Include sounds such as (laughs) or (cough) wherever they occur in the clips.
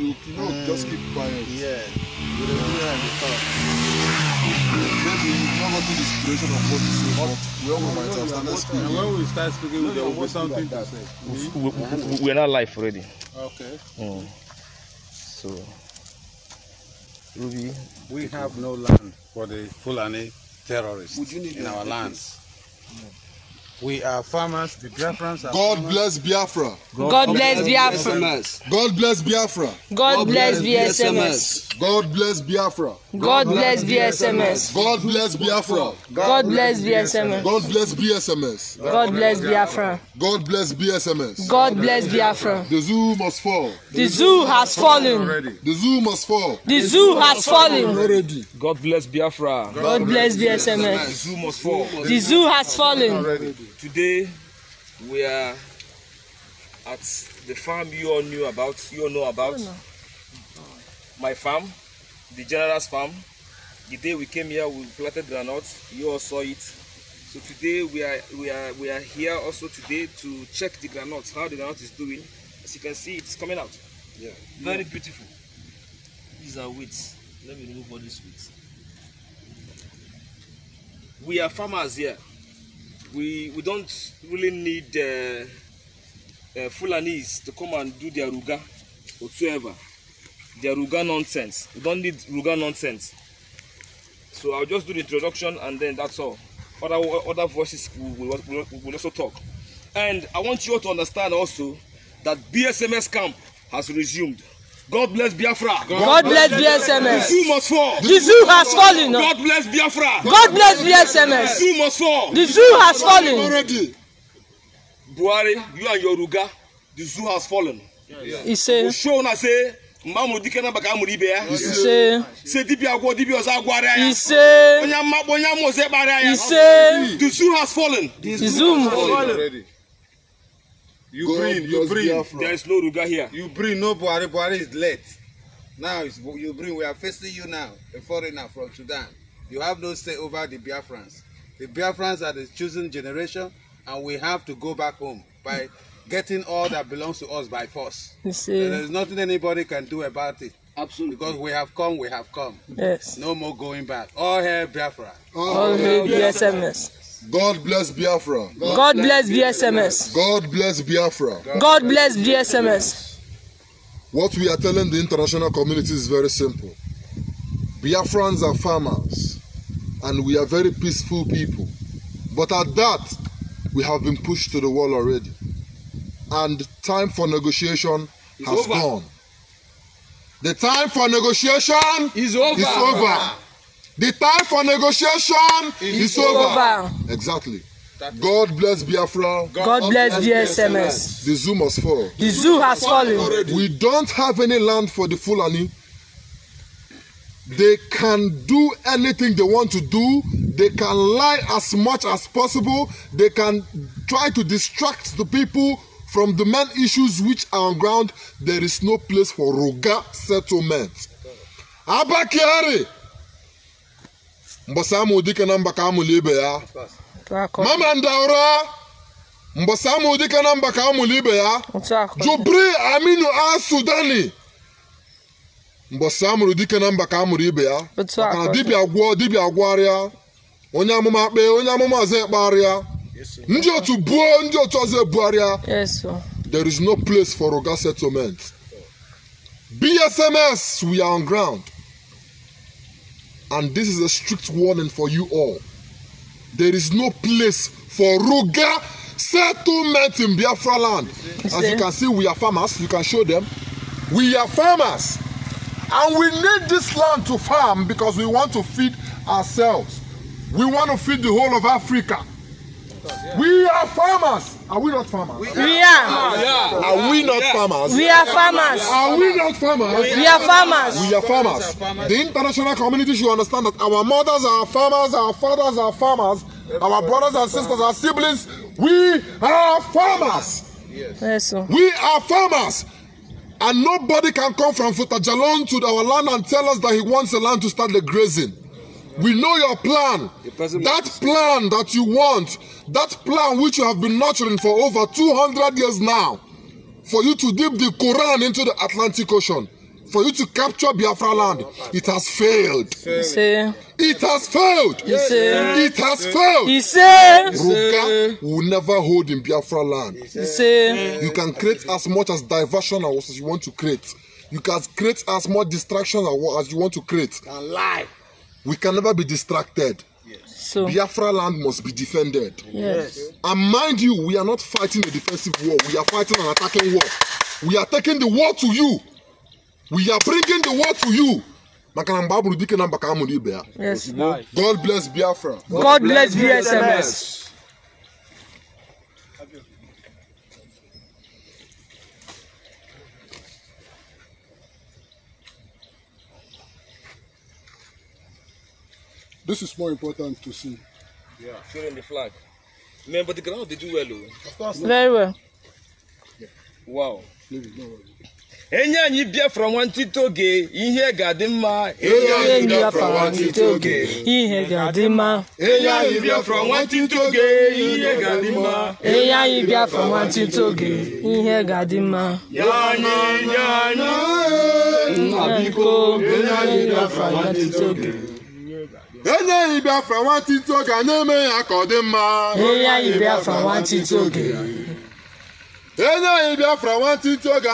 you know, just keep mm, quiet. Yeah. You do to Maybe you've the inspiration of what to say, but when we might have started speaking. And when we start speaking, no, there will be something to say. We, we, we, we are not live already. Okay. Mm. So, Ruby. We have no land for the Fulani terrorists in our lands. Yeah. We are farmers. The Biafrans are God farmers. bless Biafra. God, God bless Biafra. God bless Biafra. God bless BSMS. God bless Biafra. God bless BSMS. God bless Biafra. God bless BSMS. God bless BSMS. God bless Biafra. God bless BSMS. God bless Biafra. The zoo must fall. The zoo has fallen. The zoo must fall. The zoo has fallen. God bless Biafra. God bless BSMS. The zoo must fall. The zoo has fallen. Today we are at the farm you all knew about, you all know about. Oh, no. My farm, the general's farm. The day we came here, we planted granite. You all saw it. So today we are we are we are here also today to check the granite, how the granite is doing. As you can see, it's coming out. Yeah. Very yeah. beautiful. These are weeds. Let me remove all these weeds. We are farmers here. we we don't really need uh, uh, Fulanis to come and do their ruga whatsoever. Their ruga nonsense. We don't need ruga nonsense. So I'll just do the introduction and then that's all. Other other voices will, will, will also talk. And I want you all to understand also that BSMS camp has resumed. God bless Biafra. God, God bless BSMS. The zoo must fall. The zoo has fallen. God bless Biafra. God bless BSMS. The zoo must fall. The zoo has fallen. Already. Buhari, you and Yoruga, the zoo has fallen. He said. Show na say mgbanwe dike na baka amụrụ He ya ise ise dibịa agwọ dibịa ọzọ agwara ya ise onye mmakpọ onye amụ ọzọ ịkpara ya ise the zoo has fallen the zoo has fallen You Go bring, you bring. Biafra. There is no Ruga here. You bring, no Buhari. Buhari is late. Now it's, you bring, we are facing you now, a foreigner from Sudan. You have no say over the Biafrans. The Biafrans are the chosen generation, and we have to go back home by getting all that belongs to us by force. You see. There is nothing anybody can do about it. Absolutely. Because we have come, we have come. Yes. No more going back. All hail Biafra. All, all hail BSMS. God bless Biafra. God, bless BSMS. God bless Biafra. God bless BSMS. What we are telling the international community is very simple. Biafrans are farmers and we are very peaceful people. But at that, we have been pushed to the wall already. And time for negotiation has gone. The time for negotiation is over. Is over. The time for negotiation is, is over. over. Exactly. God bless Biafra. God, God bless BSMS. The zoo must fall. The zoo has fallen. We don't have any land for the Fulani. They can do anything they want to do. They can lie as much as possible. They can try to distract the people from the main issues which are on ground. There is no place for Roga settlement. Abakari. mgbasa amụ dike na mba ka amụlụ ibe ya mama ndaura mgbasa amụ dike na mba ka amụlụ ibe ya jubri aminu asudani mgbasa amụrụ dike na mba ka amụrụ ibe ya maka na dibịa gwụọ dibịa gwụarịa onye amụma kpee onye amụma ọzọ ekpegharịa ndị otu buo ndị otu ọzọ ebugharịa there is no place for oga settlement bsms we are on ground And this is a strict warning for you all. There is no place for Ruga settlement in Biafra land. As you can see, we are farmers. You can show them. We are farmers. And we need this land to farm because we want to feed ourselves. We want to feed the whole of Africa. We are farmers. Are we not farmers? We are. are. we not farmers? We are farmers. Are we not farmers? We are farmers. We are farmers. The international community should understand that our mothers are farmers, our fathers are farmers, our brothers and sisters are siblings. We are farmers. Yes. We are farmers. And nobody can come from Futajalon to our land and tell us that he wants the land to start the grazing. We know your plan. That plan that you want, that plan which you have been nurturing for over 200 years now, for you to dip the Quran into the Atlantic Ocean, for you to capture Biafra land, it has failed. Fail. It has failed. Fail. It has failed. He Ruga will never hold in Biafra land. Fail. You can create as much as diversion as you want to create. You can create as much distraction as you want to create. And lie. We can never be distracted. Yes. So, Biafra land must be defended. Yes. And mind you, we are not fighting a defensive war. We are fighting an attacking war. We are taking the war to you. We are bringing the war to you. Yes. na mgbe a bụrụ god bless biafra god bless bsms This is more important to see. Yeah, showing the flag. Man, but the ground did do well. Oh. Of course. Very well. Yeah. Wow. no worries. bịa from ihe bịa from ihe bịa from ihe bịa from ihe bịa from enye anyị Biafra nwantịntị oge na-eme ya ka ọ dị mma enye anyị Biafra oge oge a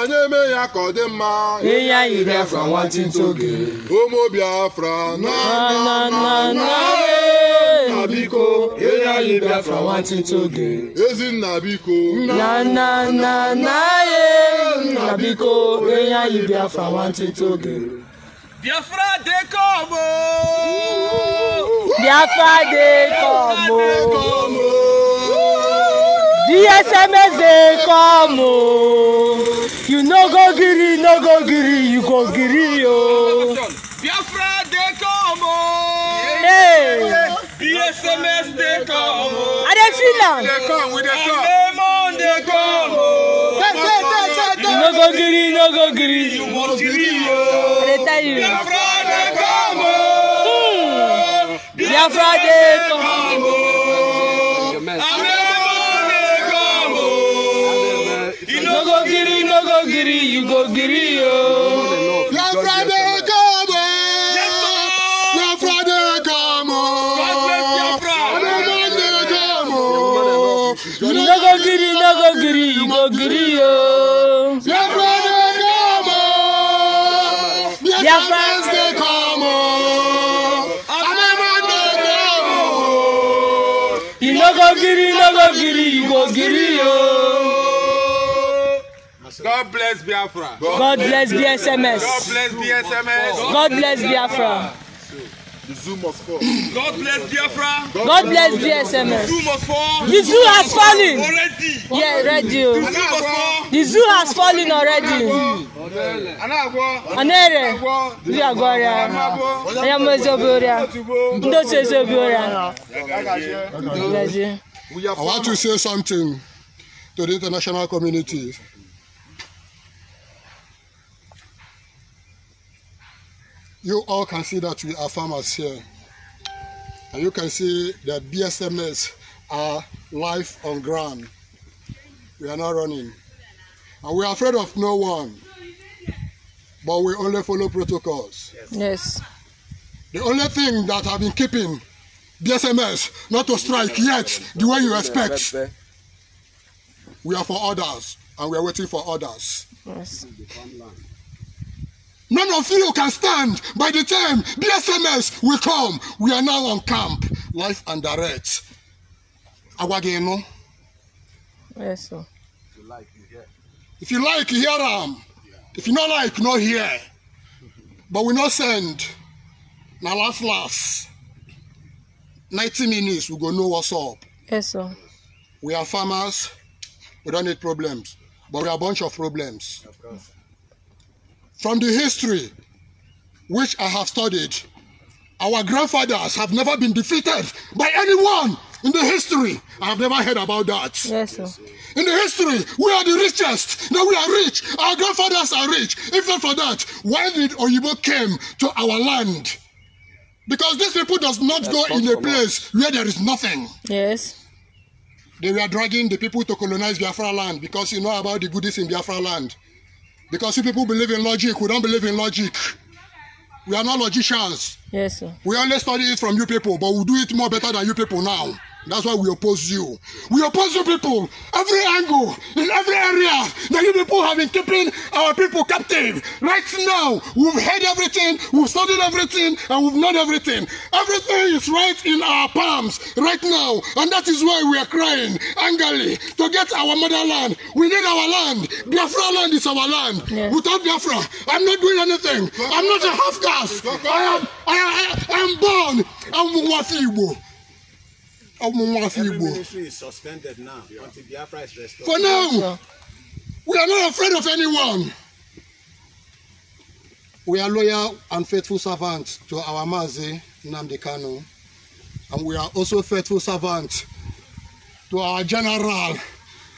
na-eme ya ka ọ dị mma ụmụ Biafra nna biko Ezinna biko biko enye anyị Biafra oge Biafra dey come ooo. Biafra dey come ooo. DSMS dey come You no go giri, no go giri, you go giri, yo. Biafra dey come Hey. DSMS dey come Are they dey They am. Dey come, we They come. Lemon dey come No go green, no go green. You must leave. They tell you. Biafra dey come. Hmm. Biafra dey come. Amemo dey come. You no go green, no go green. You go green. Nagogiri, nagogiri, igogiri yo. God bless Biafra. God bless BSMS. God bless BSMS. God bless Biafra. God bless Biafra. The zoo must fall. God bless Biafra. God, God bless DSMS. The zoo must fall. The zoo has fallen. Already. Yeah, already. Oh. The zoo must fall. The zoo has fallen already. Anere. Ndị agwa ọrịa. Onye mmụọ ezobi ọrịa. Ndị otu ezobi ọrịa. I want to say something to the international community. you all can see that we are farmers here. And you can see that BSMS are live on ground. We are not running. And we are afraid of no one. But we only follow protocols. Yes. The only thing that I've been keeping BSMS not to strike yet the way you expect. We are for others and we are waiting for others. Yes. None of you can stand by the time BSMS will come. We are now on camp. Life and direct. no. Yes, sir. If you like, you hear. If you like, you hear them. Um. Yeah. If you not like, not hear. (laughs) but we not send. Now last last. 90 minutes, we go know what's up. Yes, sir. We are farmers. We don't need problems. But we are a bunch of problems. Yeah. From the history which I have studied, our grandfathers have never been defeated by anyone in the history. I have never heard about that. Yes, sir. In the history, we are the richest. Now we are rich. Our grandfathers are rich. If not for that, why did Oyibo came to our land? Because these people does not That's go in a place where there is nothing. Yes. They were dragging the people to colonize Biafra land because you know about the goodies in Biafra land. Because if people believe in logic, we don't believe in logic. We are not logicians. Yes, sir. We only study it from you people, but we we'll do it more better than you people now. That's why we oppose you. We oppose you people, every angle, in every area that you people have been keeping our people captive. Right now, we've heard everything, we've studied everything, and we've known everything. Everything is right in our palms right now, and that is why we are crying angrily to get our motherland. We need our land. Biafra land is our land. Yeah. Without Biafra, I'm not doing anything. I'm not a half caste. I am, I, I, I am born. I'm Wafi Every ministry is suspended now For now, we are not afraid of anyone. We are loyal and faithful servants to our Mazi Nnamdi Kanu, and we are also faithful servants to our General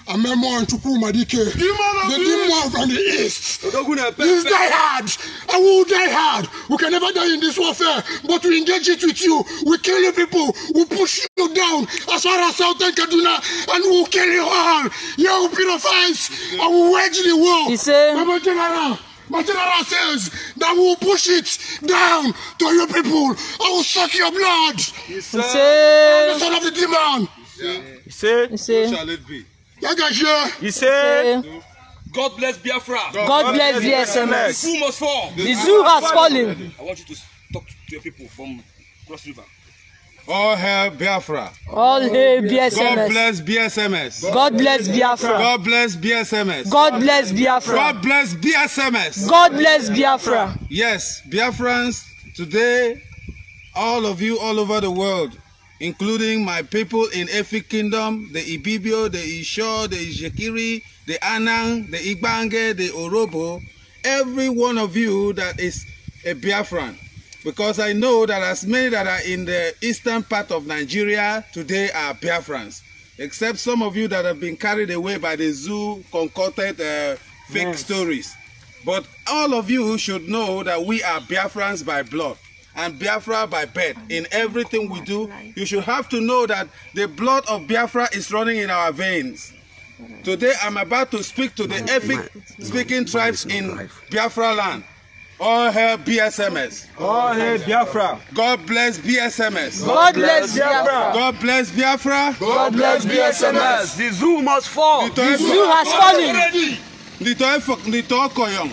amemo and Chupumadike. The demon from the east. Please die hard. I will die hard. We can never die in this warfare, but we engage it with you. We kill you people. We push you down as far as Southern Kaduna, and we will kill you all. You will be the fights. I will wage the war. He said, Mama General. My general says that we will push it down to your people. I will suck your blood. He said, I'm the son of the demon. He said, He said, He said, shall it be? Yagashia. He said. God bless Biafra. God, God bless BSMS. The zoo must fall. The, the zoo has fallen. I want you to talk to your people from Cross River. All hail Biafra. All hail BSMS. God bless BSMS. God bless Biafra. God bless BSMS. God bless Biafra. God bless BSMS. God bless Biafra. Yes, Biafrans, today, all of you all over the world, including my people in every kingdom, the Ibibio, the Isho, the Ijekiri, the Anang, the Igbange, the Orobo, every one of you that is a Biafran. Because I know that as many that are in the eastern part of Nigeria today are Biafrans, except some of you that have been carried away by the zoo concocted uh, fake yes. stories. But all of you should know that we are Biafrans by blood. and Biafra by birth. In everything we do, you should have to know that the blood of Biafra is running in our veins. Today, I'm about to speak to the ethnic-speaking tribes in Biafra land. All hail BSMS. All hail Biafra. God bless BSMS. God bless Biafra. God bless Biafra. God bless BSMS. The zoo must fall. The zoo has fallen. Nito Koyong.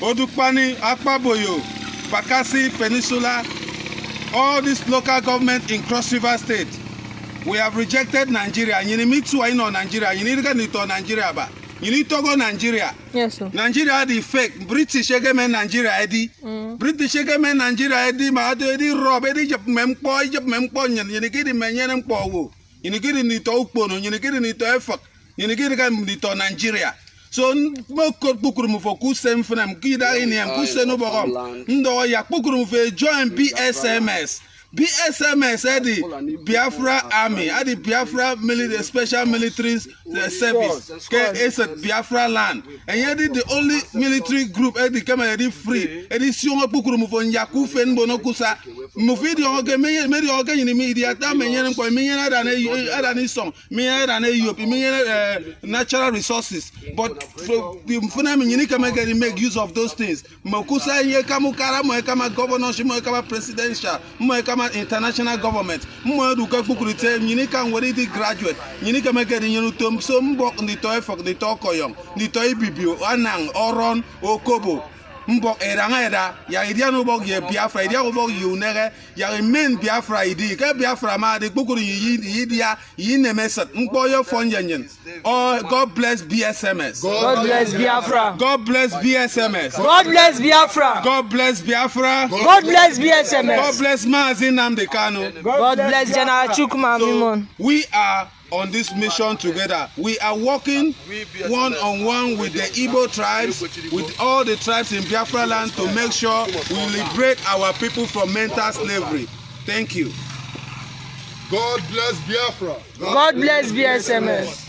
Odupani Akpaboyo. Bakassi Peninsula, all these local government in Cross River State, we have rejected Nigeria. You need to know Nigeria. You need to know Nigeria. You need to go to Nigeria. Yes, sir. Nigeria the fake. British government Nigeria edi. Mm. British government Nigeria edi ma ado edi rob edi jep mempo jep mempo nyen. You need to menye nempo wo. You need to know to ukpo no. You need to know to effort. You need to know to Nigeria so mo ko kpukuru mu fɔ k'u se n fana mu k'i da ye nin ye k'u se n'o bɔgɔ n dɔgɔ ya kpukuru mu fɛ e join bsms bsms Adi, biafra army Adi biafra military special military service kẹ ẹ sẹ biafra land ẹ̀yẹ́ di the only military group Adi di kẹ́mẹ́ ẹ free Adi di si wọn kpukuru fen fo nyaku fe nbọ n'oku sa mufi di ọkẹ mẹri ọkẹ yìnyín mi ìdí ata mẹnyẹrẹ nkọ mẹnyẹrẹ ẹdani ẹdani sọm mẹnyẹrẹ ẹdani europe mẹnyẹrẹ natural resources but fúnẹ mi yìnyín kẹ́mẹ́ kẹ́ni make use of those things mọ̀kusa yẹ kàmú kára mọ̀ ẹ kàmá governor mọ̀ presidential mọ̀ ẹ former international government mmụeruka kpukwurite nyinika nwere ndị graduate nyinika mekere nyere utom so mbọ ndịtọ efok ndịtọ koyom ndịtọ ibibi anang oron okobo mbɔ ɛranga ɛda yàrá ìdí àná yɛ biafra ìdí àná bɔ yòó nɛgɛ yàrá main biafra ìdí kɛ biafra ma de kpokoro yi yi diya nkpɔ yɛ fɔ nyɛnyɛn god bless bsms. god bless biafra. god bless bsms. god bless biafra. god bless biafra. god bless bsms. god bless maazi nnamdi kanu. god bless general chukwuma mimon. so we are on this mission together. We are working one on one with the Ibo tribes, with all the tribes in Biafra land to make sure we liberate our people from mental slavery. Thank you. God bless Biafra. God, bless BSMS.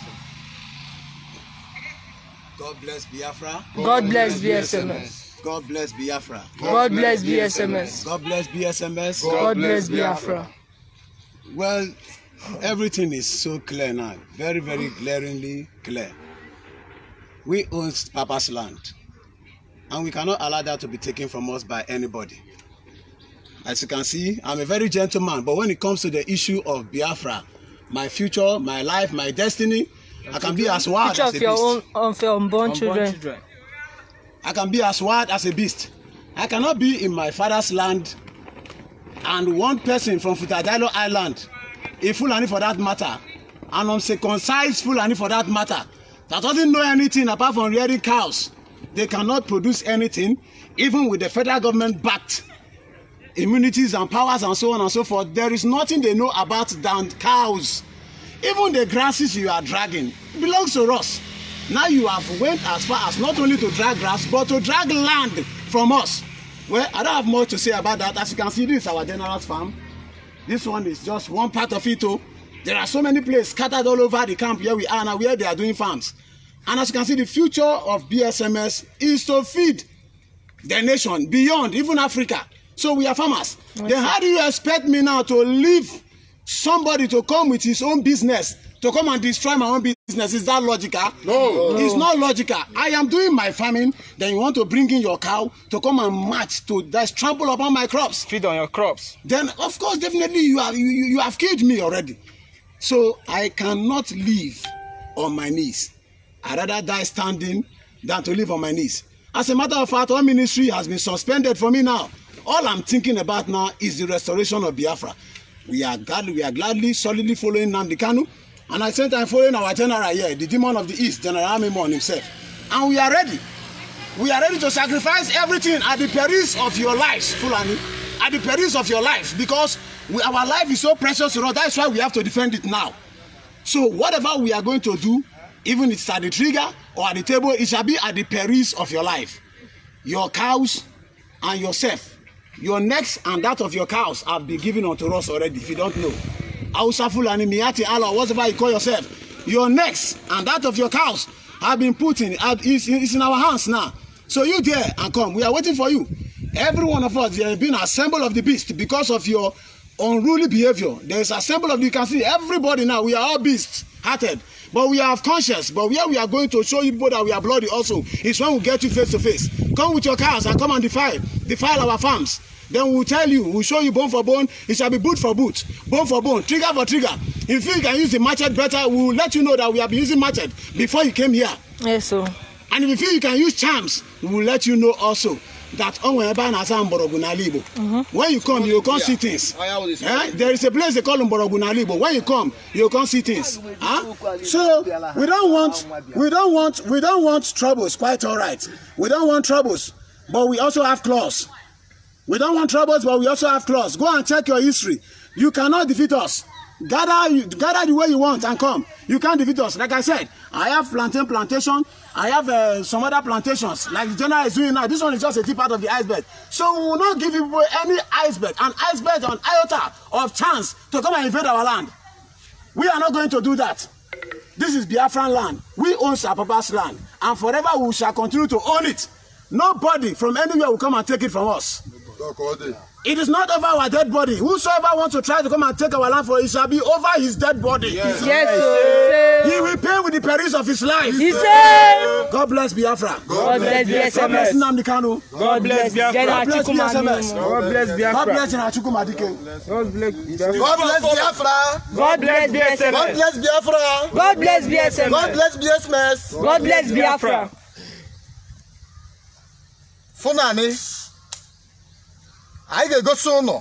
God bless Biafra. God bless BSMS. God bless Biafra. God bless BSMS. God bless BSMS. God bless Biafra. Well, Everything is so clear now, very, very glaringly clear. We own Papa's land, and we cannot allow that to be taken from us by anybody. As you can see, I'm a very gentle man, but when it comes to the issue of Biafra, my future, my life, my destiny, your I can be as wild as a beast. Your own, of unborn, unborn children. children. I can be as wild as a beast. I cannot be in my father's land and one person from Futadilo Island a Fulani for that matter, an uncircumcised Fulani for that matter, that doesn't know anything apart from rearing cows, they cannot produce anything, even with the federal government backed immunities and powers and so on and so forth. There is nothing they know about than cows. Even the grasses you are dragging belongs to us. Now you have went as far as not only to drag grass, but to drag land from us. Well, I don't have much to say about that. As you can see, this is our general's farm. This one is just one part of it. Oh. There are so many places scattered all over the camp where we are now, where they are doing farms. And as you can see, the future of BSMS is to feed the nation beyond, even Africa. So we are farmers. Okay. Then how do you expect me now to live? somebody to come with his own business to come and destroy my own business is that logical no, no. it's not logical i am doing my farming then you want to bring in your cow to come and match to just trample upon my crops feed on your crops then of course definitely you have you, you have killed me already so i cannot live on my knees i rather die standing than to live on my knees as a matter of fact all ministry has been suspended for me now all i'm thinking about now is the restoration of biafra we are glad we are gladly solidly following Nnamdi Kanu and at the same time following our general here the demon of the east General Amimon himself and we are ready we are ready to sacrifice everything at the perils of your lives Fulani at the perils of your lives because we, our life is so precious to us that's why we have to defend it now so whatever we are going to do even if it's at the trigger or at the table it shall be at the perils of your life your cows and yourself your necks and that of your cows have been given unto us already if you don't know hausa fulani miati allah whatever you call yourself your necks and that of your cows have been put in It's in our hands now so you there and come we are waiting for you every one of us there has been assemble of the beast because of your unruly behavior. there is assemble of you can see everybody now we are all beasts hearted But we have conscience. But where we are going to show you people that we are bloody also is when we get you face to face. Come with your cows and come and defile, defile our farms. Then we'll tell you, we'll show you bone for bone. It shall be boot for boot, bone for bone, trigger for trigger. If you can use the machete better, we'll let you know that we have been using machete before you came here. Yes, sir. And if you feel you can use charms, we'll let you know also that onwe ebe a na-asa mgbọrọgwụ n'ala Igbo when you come you come see things eh? there is a place they call mgbọrọgwụ n'ala Igbo when you come you come see things huh? so we don't want we don't want we don't want troubles quite all right we don't want troubles but we also have claws we don't want troubles but we also have claws go and check your history you cannot defeat us gather gather the way you want and come you can't defeat us like I said I have plantain plantation I have uh, some other plantations, like the general is doing now. This one is just a tip part of the iceberg. So we will not give people any iceberg, an iceberg on iota of chance to come and invade our land. We are not going to do that. This is Biafran land. We own Sapapa's land. And forever we shall continue to own it. Nobody from anywhere will come and take it from us. Nobody. It is not over our dead body. Whosoever wants to try to come and take our land for it shall be over his dead body. Yes, yes He will pay with the perils of his life. He said, God bless Biafra. God bless Biafra. God bless Nnamdi God bless Biafra. God bless BSMS. God bless Biafra. God bless Nnachukwuma God bless Biafra. God bless Biafra. God bless BSMS. God bless Biafra. God bless BSMS. God bless BSMS. God bless Biafra. Fúnàní. anyị ga-egosi ụnụ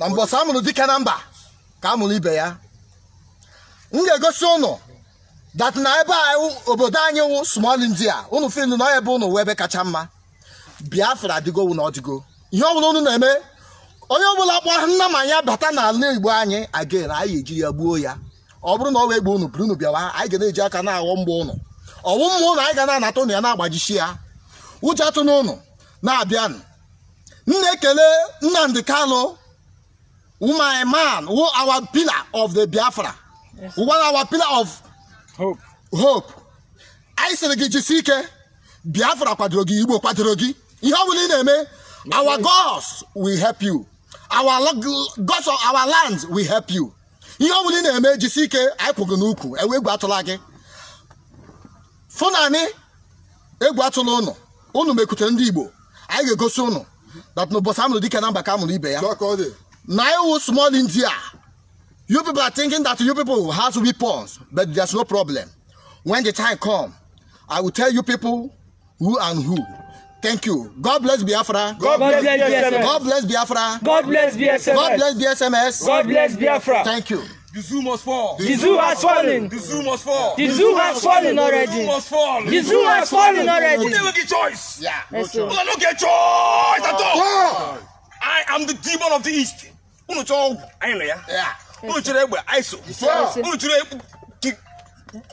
na mbọsị amụrụ dike na mba ka amụrụ ibe ya m ga-egosi ụnụ dat na ebe obodo anyị wụ small india ụnụ fil na ebe ụnụ wee ebe kacha mma biafra adịgowu na ọdịgo ihe ọbụla ụnụ na-eme onye ọbụla kpọ nna ma ya bata n'ala igbo anyị again anyị ejiri ya gbuo ya ọ bụrụ na ọ wee gbuo ụnụ buru ụnụ bịawa anyị ga na-eji aka na-aghọ mgba ụnụ ọwụ mma ụnụ anyị ga na-anata ụnụ ya na-agbajisi ya ụjọ atụ ụnụ na-abịanụ nnekele na-ekele Nnamdi Kanu my man who our pillar of the Biafra yes. our pillar of hope hope anyị sịrị gị jisike ike Biafra kwadoro gị Igbo kwadoro gị ihe ọ bụla ị na-eme our gods will help you our gods of our lands will help you ihe ọ bụla ị na-eme jisie ike anyị kwụgị n'ukwu ewe egwu atụla gị fụnanị egwu atụla ụnụ ụnụ mekwutere ndị Igbo anyị ga-egosi ụnụ that no boss amụrụ dike na mba ka amụrụ ibe ya Now iwu small india you people are thinking that you people has to be weapons but there's no problem when the time come i will tell you people who and who Thank you. God bless Biafra. God, bless, bless God bless Biafra. God bless BSMS. God bless BSMS. God bless Biafra. Thank you. The zoo must fall. The zoo has fallen. The zoo must fall. The zoo has fallen already. The zoo must fall. The zoo has fallen already. You never get choice. Yeah. No don't get choice at all. I am the demon of the east. Unu chọ anyị na ya. Unu chọrọ egbe ISO. Unu chọrọ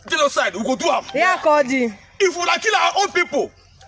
genocide. We go do am. Ya ka ọ dị. If una kill our own people.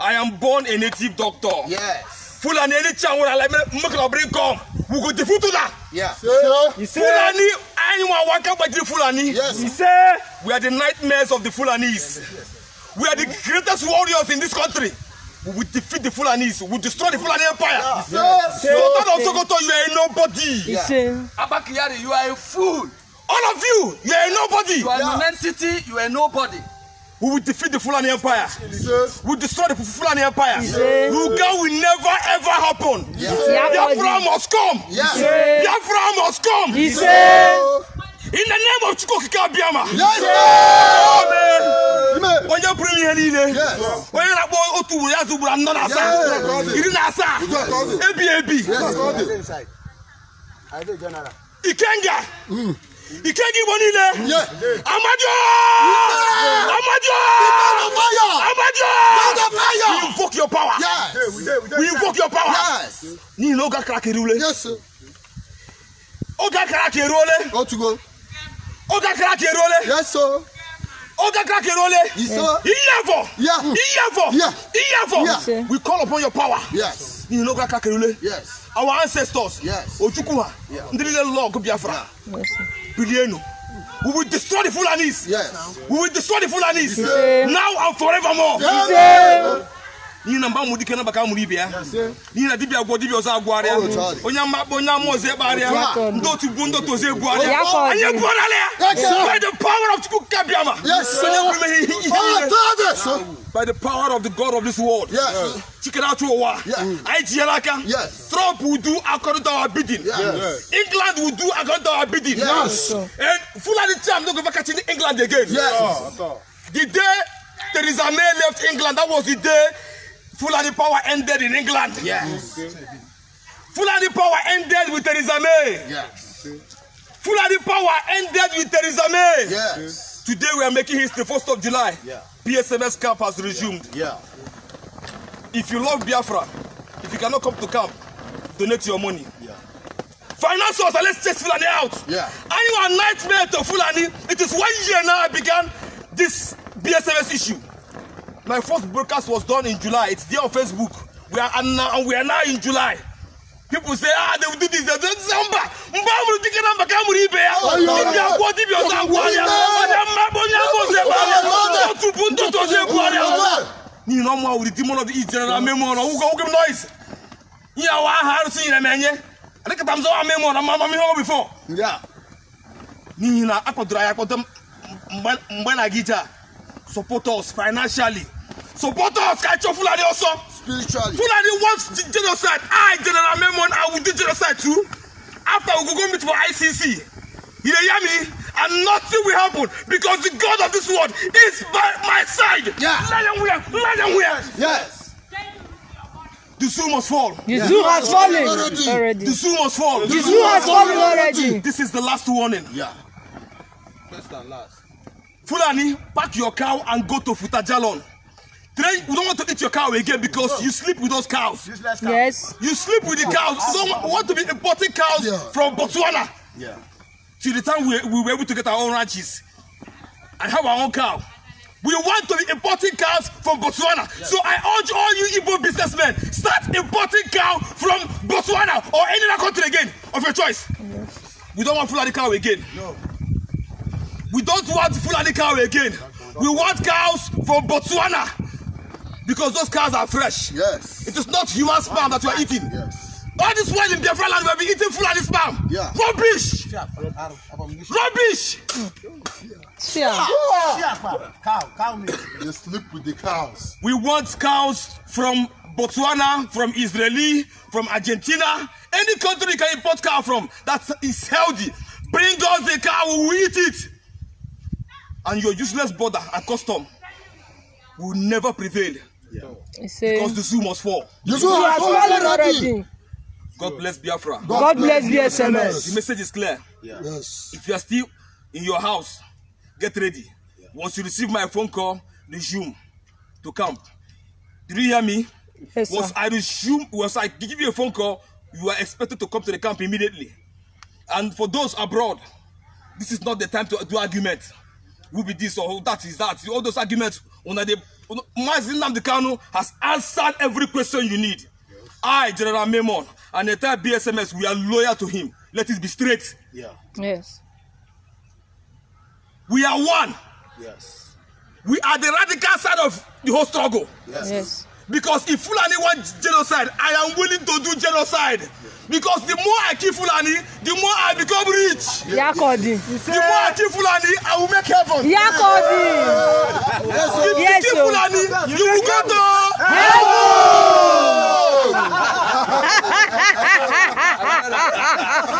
I am born a native doctor. Yes. Fulani any chance I like make a bring come. We go to Futula. Yeah. Sir, Fulani anyone waka by the Fulani. Yes. He say we are the nightmares of the Fulanis. We are the greatest warriors in this country. We will defeat the Fulanis. We will destroy the Fulani Empire. Sir, Yes. Sultan of Sokoto, you are a nobody. Yeah. Abba Kyari, you are a fool. All of you, you are a nobody. You are yeah. an entity. You are a nobody. We will defeat the Fulani Empire. We will destroy the Fulani Empire. Yes. Ruga will never ever happen. Yes. Biafra must come. Yes. Biafra must come. In the name of Chukwukika Biama. Yes. Amen. When you Onye bụrụ ihe niile onye na-akpọ otu ugboro ya zugburu anọ na asaa Yes. na I ebi ebi Ikenga mm ìkéjì wọn nílẹ amadu amadu amadu we invoke your power we invoke your power ní ìlú ọgá kárakiri wọlé ọgá kárakiri wọlé ọgá kárakiri wọlé oga kake role iyafo iyafo iyafo we call upon your power in oga kake role our ancestors ojukwuha ndị niile lọgụ biafra Bilienu. We will destroy the Fulanis. Yes. We will destroy the Fulanis. Yes. Now and forevermore. Yes. Yes. n'ihi na mgbe amụrụ ike na baka amụrụ ibe ya n'ihi na dibịa agwọ dibịa ọzọ agwọgharịa onye mmakpọ onye ama ọzọ ekpegharịa ndị otu buo ndị otu ọzọ ebugharịa anyị ebugharịala ya by the power of Chukwu kabiama onye nwere imeghe ihe by the power of the God of this world chikere atụ ụwa anyị tinyere aka Europe will do according to our bidding. Yes. England will do according to our bidding. Yes. And Fulani I'm not going to catch in England again. Yes. The day Theresa May left England, that was the day Fulani power ended in England. Yes. Fulani power ended with Theresa May. Yes. Fulani power ended with Theresa May. Yes. Today we are making history, 1st of July. Yeah. PSMS camp has resumed. Yeah. yeah. If you love Biafra, if you cannot come to camp, donate your money. Yeah. Finance us and let's chase Fulani out. Yeah. And you a nightmare to Fulani. It is one year now I began this BSMS issue. My first broadcast was done in July. It's there on Facebook. We are and now and we are now in July. People say, ah, they will do this, they will do this. Mba, mba, we will take a number, come with Ibe. If you are going to be on that one, you are going to be on that one. You are going to be on that one. You are going to be on that one. You are going to be on that one. You are going to be on that one. You are going to be on that one ya wa haru si ire menye adika tamzo wa memo na mama mi ho before yeah ni na akwadura ya kwadam mgbe na gija support us financially support us ka cho fulani also spiritually fulani wants genocide i general memon i will do genocide too after we go go meet for icc you dey hear me and nothing will happen because the god of this world is by my side. Yeah. Let them wear. Let them wear. Yes. yes. The zoo must fall. The yeah. zoo has fallen already. already. The zoo must fall. The, the zoo, zoo has fallen already. already. This is the last warning. Yeah. First and last. Fulani, pack your cow and go to Futajalon. Today, we don't want to eat your cow again because you sleep with those cows. cows. Yes. You sleep with the oh. cows. We don't want to be importing cows yeah. from Botswana. Yeah. Till the time we, we were able to get our own ranches and have our own cow. We want to be importing cows from Botswana. Yes. So I urge all you Igbo businessmen, start importing cows from Botswana or any other country again, of your choice. Yes. We don't want Fulani cow again. No. We don't want Fulani cow again. We want cows from Botswana because those cows are fresh. Yes. It is not human sperm that you are eating. Yes. All this while in Biafra land, we have been eating Fulani sperm. Yeah. Rubbish. Yeah. Rubbish. Shia. Shia. Cow. Cow meat. They sleep with the cows. We want cows from Botswana, from Israeli, from Argentina, any country you can import cow from that is healthy. Bring us the cow, we will eat it. And your useless border and custom will never prevail. Yeah. Because the zoo must fall. The zoo has fallen already. God bless Biafra. God, God bless SMS. The message is clear. Yes. yes. If you are still in your house, get ready. Yeah. Once you receive my phone call, resume to camp. Do you hear me? Yes, once sir. I resume, once I give you a phone call, you are expected to come to the camp immediately. And for those abroad, this is not the time to do argument. Will be this or that is that. All those arguments, una dey, Mazin Namdekanu has answered every question you need. Yes. I, General Memon, and the entire BSMS, we are loyal to him. Let it be straight. Yeah. Yes. We are one. Yes. We are the radical side of the whole struggle. Yes. yes. Because if Fulani want genocide, I am willing to do genocide. Because the more I kill Fulani, the more I become rich. Yakodi. Yes. The more I kill Fulani, I will make heaven. Yakodi. Yes. If yes, you kill Fulani, you, you will go to heaven. (laughs) (laughs)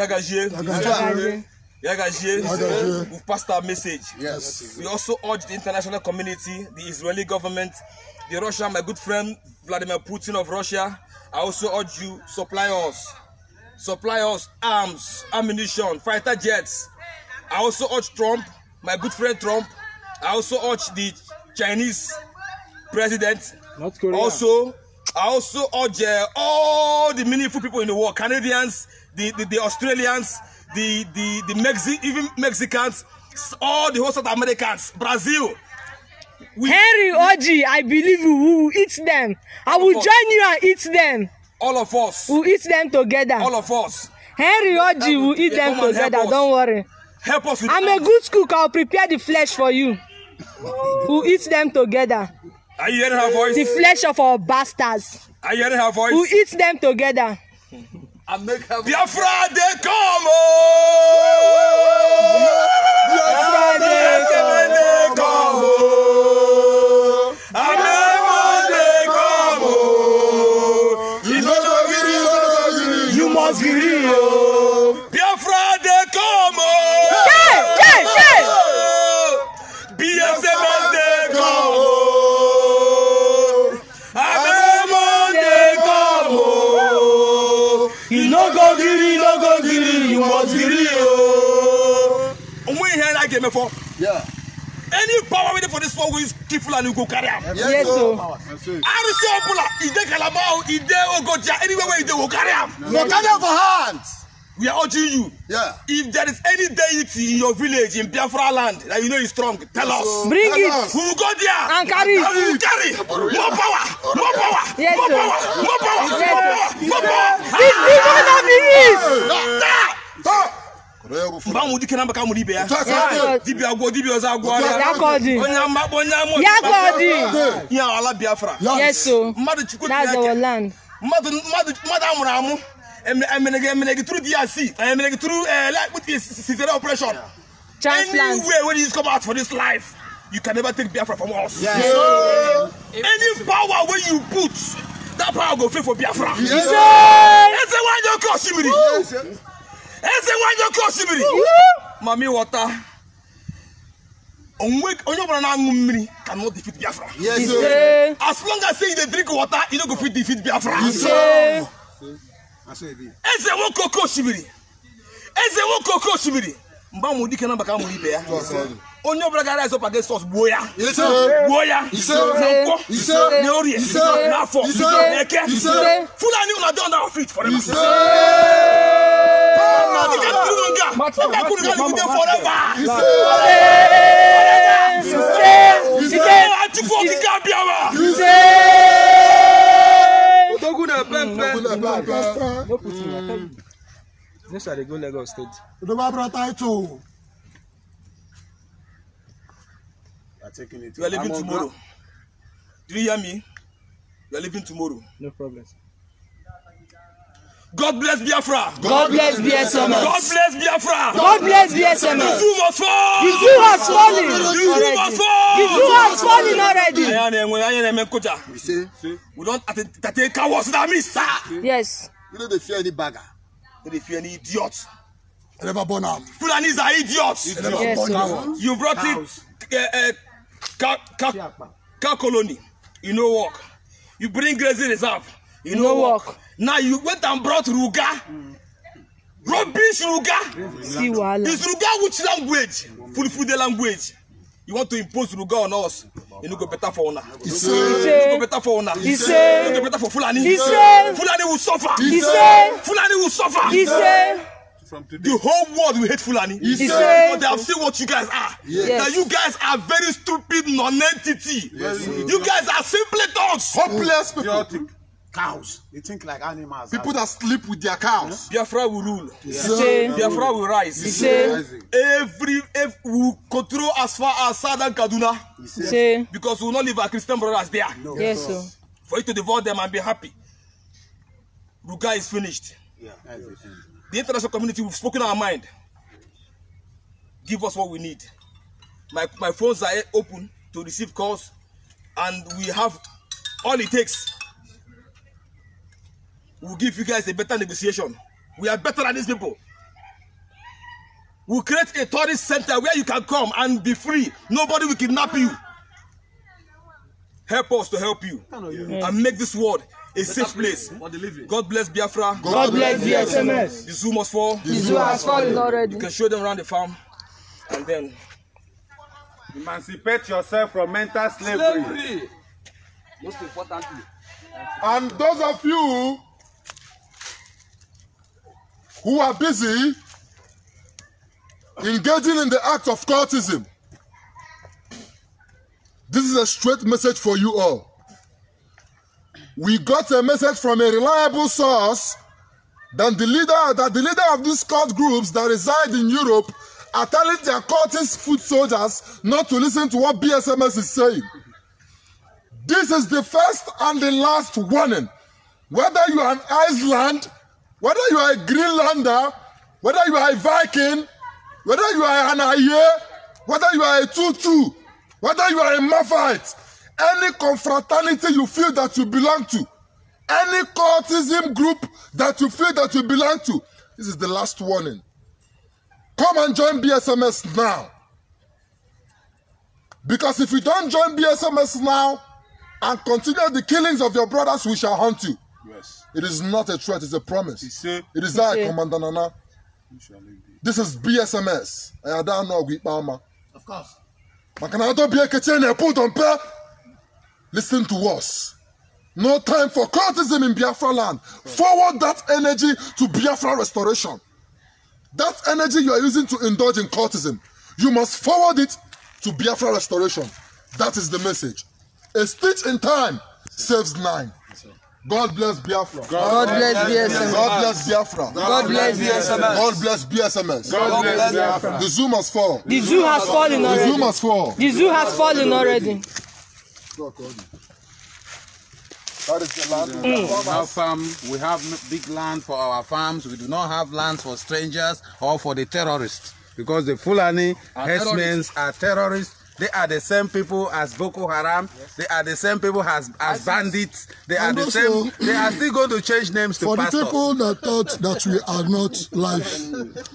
Yagajie. Yagajie. Yagajie, Yagajie. passed our message. Yes. We also urge the international community, the Israeli government, the Russia, my good friend Vladimir Putin of Russia. I also urge you, supply us. Supply us arms, ammunition, fighter jets. I also urge Trump, my good friend Trump. I also urge the Chinese president. North Korea. Also, I also urge uh, all the meaningful people in the world, Canadians, the, the, Australians, the, the, the Mexi even Mexicans, all the whole South Americans, Brazil. We, Henry Oji, I believe we will eat them. I will join you and eat them. All of us. We'll eat them together. All of us. Henry Oji will eat them together, don't worry. Help us with I'm a good cook, I'll prepare the flesh for you. (laughs) we'll eat them together. Are you hearing her voice? The flesh of our bastards. Are you hearing her voice? We'll eat them together. Biafra dey come ooo. Biafra dey come ooo. mo ti rí o. Omo yi hẹ́n láti ẹ̀mẹ́ fọ. Any power wey dey for dis world wey kill Fulani go carry am. Yes o. RC Opula, e dey Calabar o, e dey Ogoja, anywhere wey e dey go carry am. No carry am for hand. We are urging you. Yeah. If there is any deity in your village in Biafra land that you know is strong, tell so, us. Bring tell it. Us. We will go there. And carry. And we will carry. More power. More power. Yes, more power. More power. Yes, more power. More power. Yes, more power. Yes, more power. Yes, more power. Yes, more power. Yes, more power. Yes, more power. Yes, more power. Yes, more power. Yes, more power. Yes, more power. Yes, more power. Yes, more power. Yes, more power. Yes, more power mba mu dike namba kamu dibia dibia agwo dibia ọzọ agwo arịa onye ama akpọ onye ama ọdịba ya ala biafra mmadụ chukwu tineke mmadụ amụrụ amụ emenege emenege turu drc emenege turu sitere operation anywhere wey dis come out for dis life you can never take biafra from us yeah. Yeah. any power wey you put that power go fail for biafra yes. yes. yes. yes. yes. yes. yes. yes eze nwanyị oke osimiri mami ghọta onye ọbụla na-aṅụ mmiri ka no defeat biafra as long as say you dey drink water you no go fit defeat biafra eze nwoke oke osimiri eze nwoke oke osimiri mgbe amụrụ dike na maka amụrụ ibe ya onye ọbụla gara ezọpa gị sọs gbuo ya gbuo ya na nkwọ na orie na afọ na eke fulani ụlọ dị ọnda fit fọrọ dịka nkiri nga ọka kwuru ga dịgide fọrọva achụpụ okike abịawa odogwu na pempe This is the go Lagos state. Odoba brother title. taking it. You are leaving tomorrow. Do you hear me? You are leaving tomorrow. No problem. God bless Biafra. God bless BSMS. God bless Biafra. God bless BSMS. The zoo was falling. The zoo was falling. The zoo was falling. The zoo was falling already. Ayan ẹ̀wọ̀n ayan ẹ̀mẹ̀ kọjá. We say. We don tàtẹ́ cowards na me sir. Yes. We no dey fear any bagger. We no fear any idiot. I never born out. Fulanis are idiots. Idiot. Yes, you brought it. Uh, uh, cow colony you no work you bring grazing reserve you no work now you went and brought ruga rubbish ruga is ruga which language fulfill the language you want to impose ruga on us You no go better for una You no go better for una You no go better for fulani fulani will suffer fulani will suffer. From today. The whole world will hate Fulani. He, he said, but oh, they have seen what you guys are. Yes. That you guys are very stupid non-entity. Yes. You guys are simply dogs. Hopeless people. Chaotic. cows. They think like animals. People that sleep with their cows. Yeah. Biafra will rule. Yeah. Yeah. Biafra will rise. Yeah. Every, every we will control as far as southern Kaduna. Yeah. Because we will not leave our Christian brothers there. No. Yes, sir. For you to divorce them and be happy. Ruga is finished. yeah. The international community, we've spoken our mind. Give us what we need. My, my phones are open to receive calls and we have all it takes. We'll give you guys a better negotiation. We are better than these people. We'll create a tourist center where you can come and be free. Nobody will kidnap you. Help us to help you and make this world a safe place for the God bless Biafra. God, God bless the SMS. The zoo must fall. The zoo has fallen already. You can show them around the farm and then emancipate yourself from mental slavery. slavery. Most importantly. And those of you who are busy engaging in the act of cultism, this is a straight message for you all we got a message from a reliable source that the leader, that the leader of these cult groups that reside in Europe are telling their cultist foot soldiers not to listen to what BSMS is saying. This is the first and the last warning. Whether you are an Iceland, whether you are a Greenlander, whether you are a Viking, whether you are an Aye, whether you are a Tutu, whether you are a Mafite, any confraternity you feel that you belong to, any cultism group that you feel that you belong to, this is the last warning. Come and join BSMS now. Because if you don't join BSMS now and continue the killings of your brothers, we shall hunt you. Yes. It is not a threat, it's a promise. It is that, Commander Nana. This is BSMS. I don't know Of course. Maka na adọbie kechi na Listen to us. No time for cultism in Biafra land. Forward that energy to Biafra restoration. That energy you are using to indulge in cultism, you must forward it to Biafra restoration. That is the message. A stitch in time saves nine. God bless Biafra. God bless BSMS. God bless Biafra. God bless BSMS. God bless BSMS. God bless Biafra. The zoo must fall. The zoo has fallen already. The zoo must fall. The zoo has fallen already. That is the land. Mm. Our farm, we have big land for our farms. We do not have lands for strangers or for the terrorists. Because the Fulani herdsmen are terrorists. They are the same people as Boko Haram. Yes. They are the same people as, as bandits. They and are the same. They are still going to change names to For pastors. the people that thought that we are not live,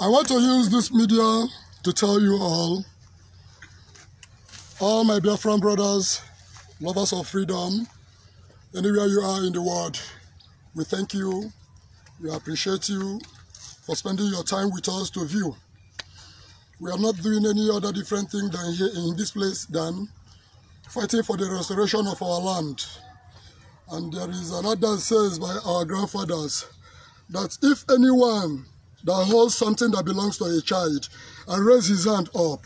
I want to use this media to tell you all all my Biafran brothers, lovers of freedom, anywhere you are in the world, we thank you, we appreciate you for spending your time with us to view. We are not doing any other different thing than here in this place than fighting for the restoration of our land. And there is another says by our grandfathers that if anyone that holds something that belongs to a child and raise his hand up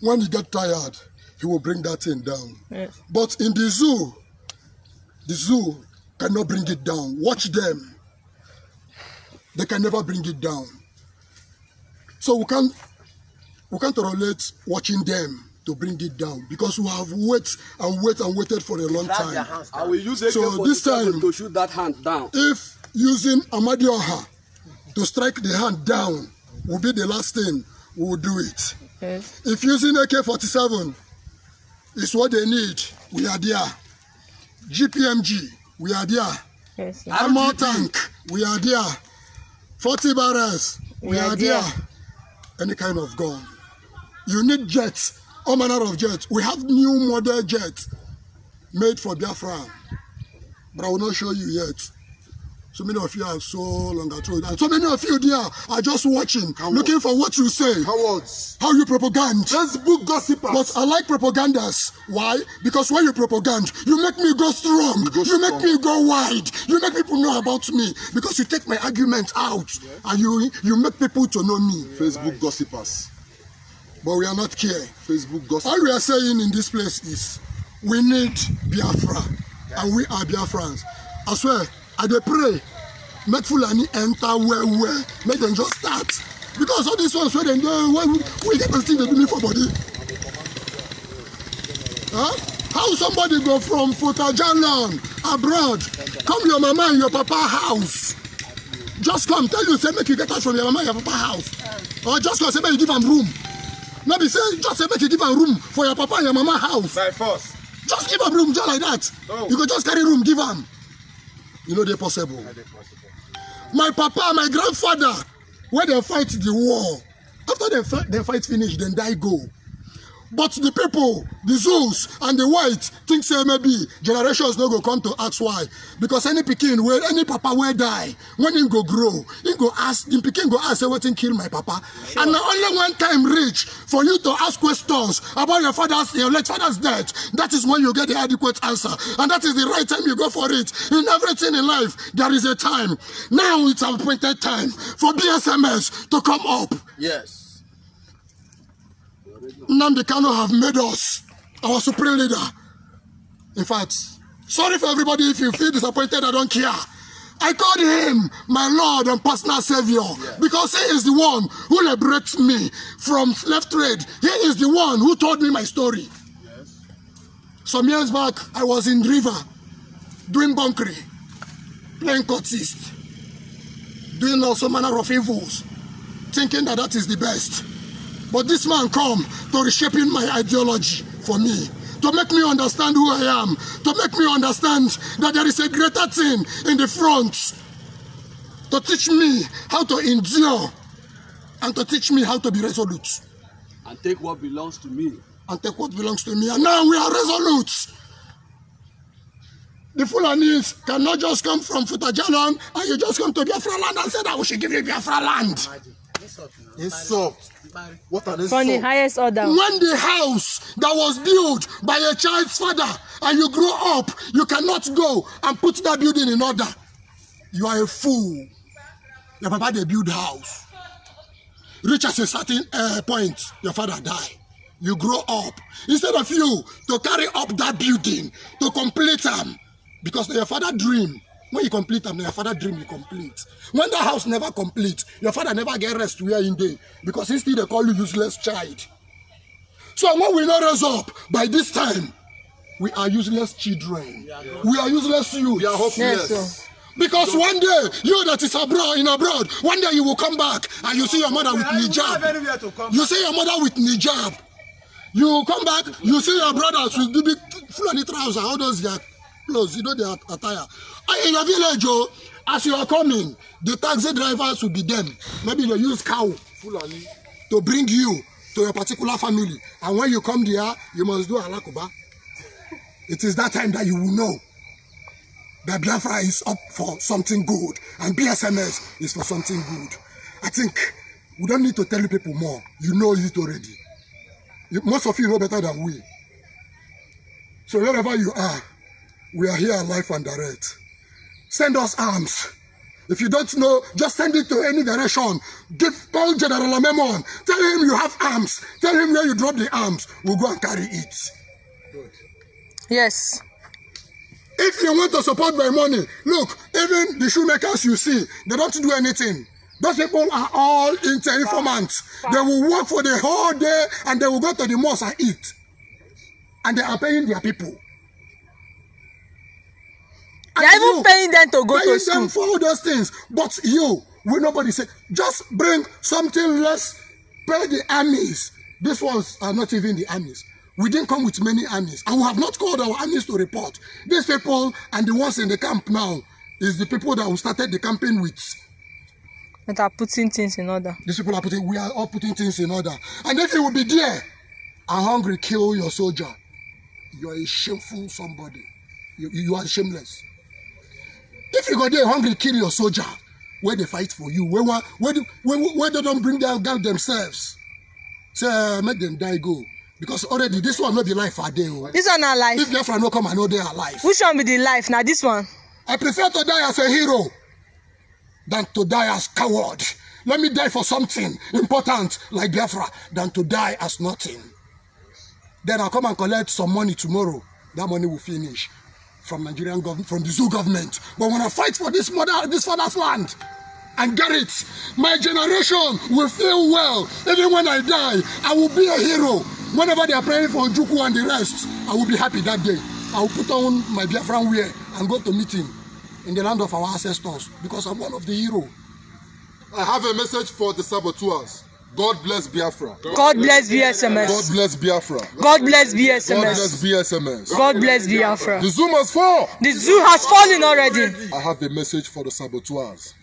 when he get tired, he will bring that thing down. Yes. But in the zoo, the zoo cannot bring it down. Watch them. They can never bring it down. So we can't we can't relate watching them to bring it down because we have wait and wait and waited for a long time. I will use so this time to shoot that hand down. If using Amadioha to strike the hand down will be the last thing, we will do it. Okay. If using AK-47 is what they need. We are there. GPMG, we are there. Yes, Armor tank, we are there. 40 barrels, we, we are, are there. there. Any kind of gun. You need jets, all manner of jets. We have new model jets made for Biafra, but I will not show you yet. So many of you are so long ago, And so many of you there are just watching, Cowards. looking for what you say. Cowards. How you propagand. Facebook gossipers. But I like propagandas. Why? Because when you propagand, you make me go strong. You, go you make me go wide. You make people know about me. Because you take my argument out. Yeah. And you, you make people to know me. Yeah, Facebook right. gossipers. But we are not care. Facebook gossip. All we are saying in this place is, we need Biafra. Yeah. And we are Biafrans. I swear, i dey pray make fulani enter well well make dem just start because all these ones wey dem dey wey we get person dey do me for body huh? how somebody go from fotajalan abroad come your mama and your papa house just come tell you say make you get out from your mama and your papa house or just come say make you give am room no be say just say make you give am room for your papa and your mama house by force just give am room just like that oh. you go just carry room give am. You know they're possible my papa my grandfather when they fight the war after they fight finish then die go But the people, the Zeus and the white think say maybe generations no go come to ask why. Because any pikin where any papa will die, when he go grow, he go ask, the Peking go ask say what kill my papa. Sure. And only one time reach for you to ask questions about your father's, your late father's death. That is when you get the adequate answer. And that is the right time you go for it. In everything in life, there is a time. Now it's appointed time for BSMS to come up. Yes. Nnamdi Kanu have made us our supreme leader. In fact, sorry for everybody if you feel disappointed, I don't care. I called him my Lord and personal Savior yeah. because he is the one who liberates me from slave trade. He is the one who told me my story. Yes. Some years back, I was in River doing bunkery, playing courtist, doing all some manner of evils, thinking that that is the best. But this man come to reshaping my ideology for me, to make me understand who I am, to make me understand that there is a greater thing in the front, to teach me how to endure, and to teach me how to be resolute. And take what belongs to me. And take what belongs to me. And now we are resolute. The Fulanis cannot just come from Futajalon and you just come to Biafra land and say that we should give you Biafra land. It's up. What an insult. From the highest order. When the house that was built by a child's father and you grow up, you cannot go and put that building in order. You are a fool. Your papa, they build house. Reach at a certain uh, point, your father die. You grow up. Instead of you to carry up that building, to complete them, um, because your father dream when you complete am na your father dream you complete when that house never complete your father never get rest where him dey because he still dey call you useless child so when we no raise up by this time we are useless children yeah, we are useless youths. we Yes, sir. Because one day, you that is abroad in abroad, one day you will come back and you see your mother with hijab. You see your mother with hijab. You come back, you see your brothers with big fulani trousers, all those that clothes, you know their attire. And ah, in your village, oh, as you are coming, the taxi drivers will be them. Maybe they use cow Fulani to bring you to your particular family. And when you come there, you must do Alakuba. It is that time that you will know that Biafra is up for something good and BSMS is for something good. I think we don't need to tell you people more. You know it already. Most of you know better than we. So wherever you are, We are here live and direct. Send us arms. If you don't know, just send it to any direction. Give Paul General Memon. Tell him you have arms. Tell him where you drop the arms. We'll go and carry it. Good. Yes. If you want to support by money, look, even the shoemakers you see, they don't do anything. Those people are all inter informants. They will work for the whole day and they will go to the mosque and eat. And they are paying their people are even paying them to go to school. Paying them for all those things. But you, we nobody say, just bring something less, pay the armies. These ones are not even the armies. We didn't come with many armies. And we have not called our armies to report. These people and the ones in the camp now is the people that we started the campaign with. That are putting things in order. These people are putting, we are all putting things in order. And if you will be there and hungry, kill your soldier. You are a shameful somebody. You, you are shameless if you go there, hungry kill your soldier wey dey fight for you wey wan wey wey wey don bring down down themselves say uh, make dem die go because already this one no be life i dey oh. this one na life. if biafra no come i no dey alive. which one be the life na this one. i prefer to die as a hero than to die as coward let me die for something important like biafra than to die as nothing then i come and collect some money tomorrow that money will finish from Nigerian government, from the zoo government. But when I fight for this mother, this father's land, and get it, my generation will feel well. Even when I die, I will be a hero. Whenever they are praying for Juku and the rest, I will be happy that day. I will put on my Biafran wear and go to meeting in the land of our ancestors because I'm one of the hero. I have a message for the saboteurs. God bless Biafra. God bless BSMS. God bless Biafra. God bless BSMS. God bless BSMS. God bless Biafra. The zoo has fallen. The zoo has fallen already. I have a message for the saboteurs.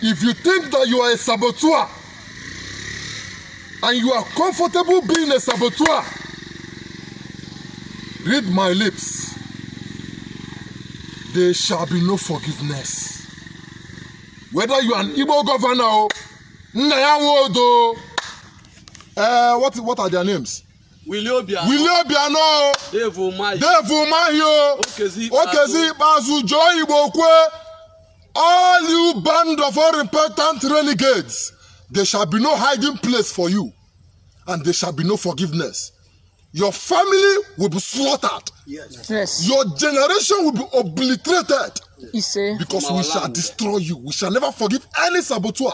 If you think that you are a saboteur and you are comfortable being a saboteur, read my lips. There shall be no forgiveness whether you are an Igbo governor o Nnayawodo o uh, eh, what what are their names. Willie Obiano Willie Obiano o Dave Umahi Dave Umahi o Okezi Ikpeazu Joe Igbo Kwe all you band of unrepentant renegades there shall be no hiding place for you and there shall be no forgiveness your family will be slaughtered. Yes. yes. Your generation will be obliterated. Yes. Because we shall destroy you. We shall never forgive any saboteur.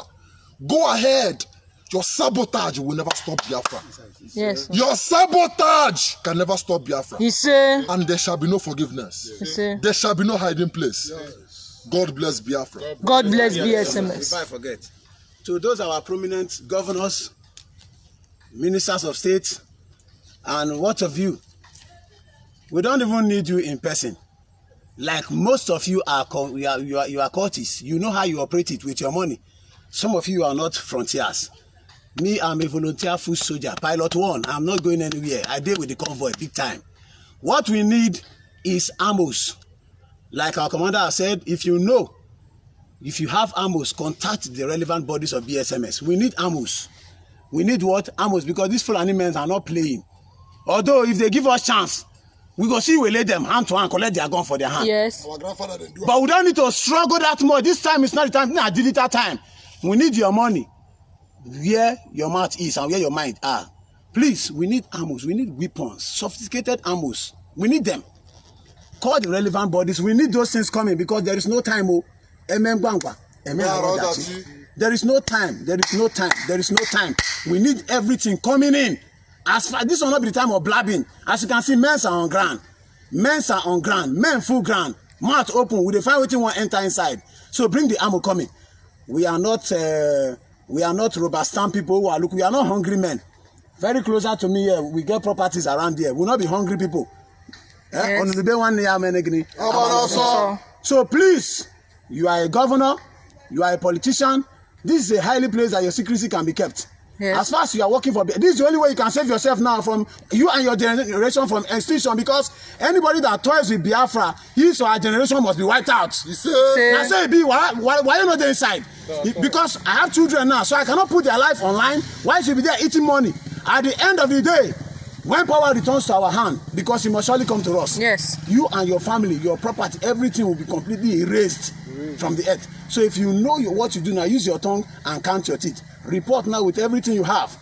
Go ahead. Your sabotage will never stop Biafra. Yes. Your sabotage can never stop Biafra. Yes. And there shall be no forgiveness. Yes. There shall be no hiding place. Yes. God bless Biafra. God bless, BSMS. If I forget, to those our prominent governors, ministers of state, And what of you? We don't even need you in person. Like most of you are, you are, you are, you are courtists. You know how you operate it with your money. Some of you are not frontiers. Me, I'm a volunteer food soldier, pilot one. I'm not going anywhere. I deal with the convoy big time. What we need is ammos. Like our commander said, if you know, if you have ammos, contact the relevant bodies of BSMS. We need ammos. We need what? ammos because these Fulani men are not playing although if they give us chance we go see we lay them hand to hand collect their gun for their hand. yes. our grandfather dey do am. but we don't need to struggle that much this time is not the time na digital time we need your money where your mouth is and where your mind are please we need armors we need weapons sophisticated armors we need them call the relevant bodies we need those things coming because there is no time o oh. emengbangba emengbangba there is no time there is no time there is no time we need everything coming in as far this one no be the time of blabbing as you can see men are on ground men are on ground men full ground mouth open we dey find wetin wan enter inside so bring the ammo coming we are not uh, we are not rubber stamp people who are look we are not hungry men very closer to me here we get properties around here we we'll no be hungry people eh on the day one so please you are a governor you are a politician this is a highly place that your secrecy can be kept Yes. As far as you are working for, this is the only way you can save yourself now from you and your generation from extinction because anybody that toys with Biafra, his or her generation must be wiped out. You see? I say, be why, why, you not there inside? Because I have children now, so I cannot put their life online. Why should be there eating money? At the end of the day, when power returns to our hand, because it must surely come to us. Yes. You and your family, your property, everything will be completely erased mm. from the earth. So if you know what you do now, use your tongue and count your teeth report now with everything you have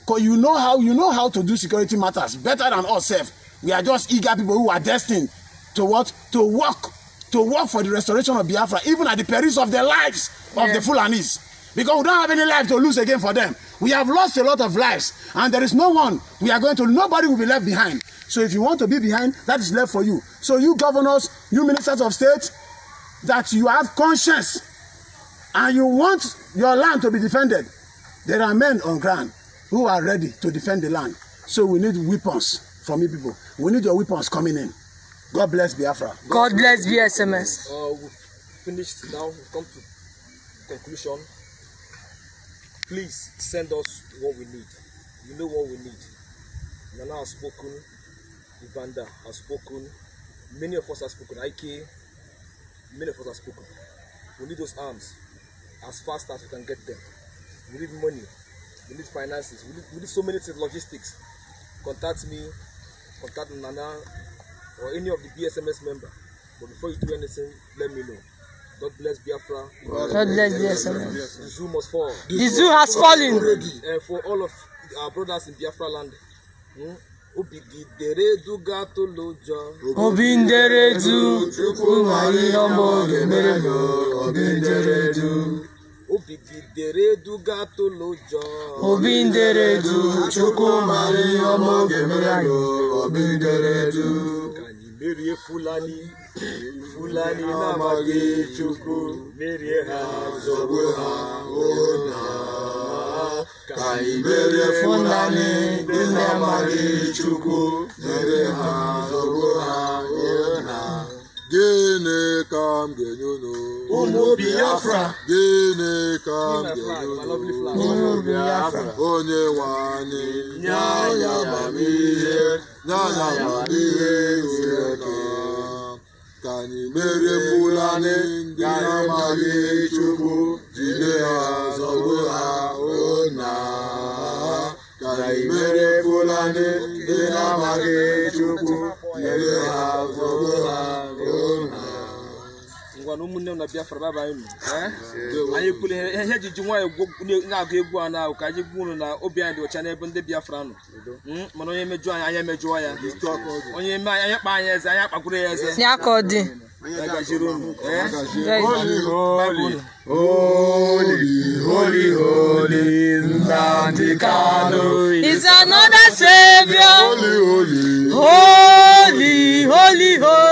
because you know how you know how to do security matters better than us sef we are just eager people who are destined to what to work to work for the restoration of Biafra even at the perils of their lives yeah. of the Fulanis because we don't have any life to lose again for them we have lost a lot of lives and there is no one we are going to nobody will be left behind so if you want to be behind that is left for you so you governors you ministers of state that you have conscience and you want your land to be defended There are men on ground who are ready to defend the land. So we need weapons from you people. We need your weapons coming in. God bless Biafra. God, God bless BSMS. Uh, we've finished now. We've come to conclusion. Please send us what we need. You know what we need. Nana has spoken. Ivanda has spoken. Many of us have spoken. IK. Many of us have spoken. We need those arms as fast as we can get them. We need money. We need finances. We need, we need so many things, logistics. Contact me, contact Nana, or any of the BSMS member. But before you do anything, let me know. God bless Biafra. God, bless Biafra. The zoo must fall. The, the zoo has fallen. Already. And for all of our brothers in Biafra land. Hmm? Obigidereduga tolojo. Obinderedu. Chukwu ma ihe ọma ọ ga-emere m. Obinderedu obibinderedugatolojo obinderedu chukwumari ọmọ oge mere anyị obinderedu merie fulani fulani na-amaghị chukwu merie ha zọgbu ha ụna ka anyị merie fulani ndị amaghị chukwu merie ha zọgbu ha ụna gịnị ka m ga-enye unu gịnị ka m ga-enye unu onye nwanyị. anyị nye anyị amamihe nye anyị amamihe zuru oke ka anyị mere Fulani ndị na-amaghị Chukwu jide ha zọgbu ha ụna ka anyị mere Fulani ndị na-amaghị Chukwu jide ha zọgbu ha ngwa na ụmụnne m na Biafra baba anyị eh? Eh? anyị kwuru ihe eh, ji ji nwaanyị na-agụ egwu a na-ahụ ka anyị gwu na obi anyị dị ọcha n'ebe ndị Biafra nọ hmm? mana onye mejụọ anyị anya ya onye eme anyị anya kpa anyị eze anya kpagburu ya eze Holy, holy, holy, Nantikano is another savior. Holy, holy, holy, holy. holy.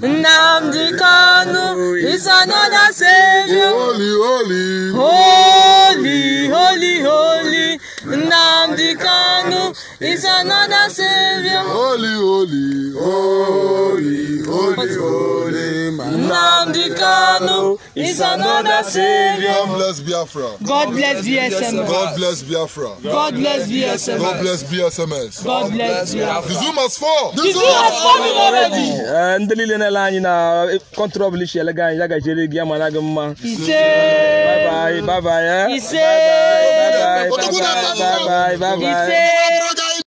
Nnamdi Kanu is another Savior. Holy, holy, holy, holy, holy. Nnamdi Kanu is another Savior. Holy, holy, holy, holy, holy, Nnamdi Kanu is another Savior. God bless Biafra. God bless BSMS. God bless Biafra. God bless BSMS. God bless BSMS. God bless Biafra. The Zoom has fall. The Zoom has fallen already. Ndị niile na-ele anyị na kọntrọbụl ishi elega anyị ya gajere gị ama na gị mma. Ise. Bye bye. Bye bye. Ise. Bye bye. Bye bye. Bye bye. Ise.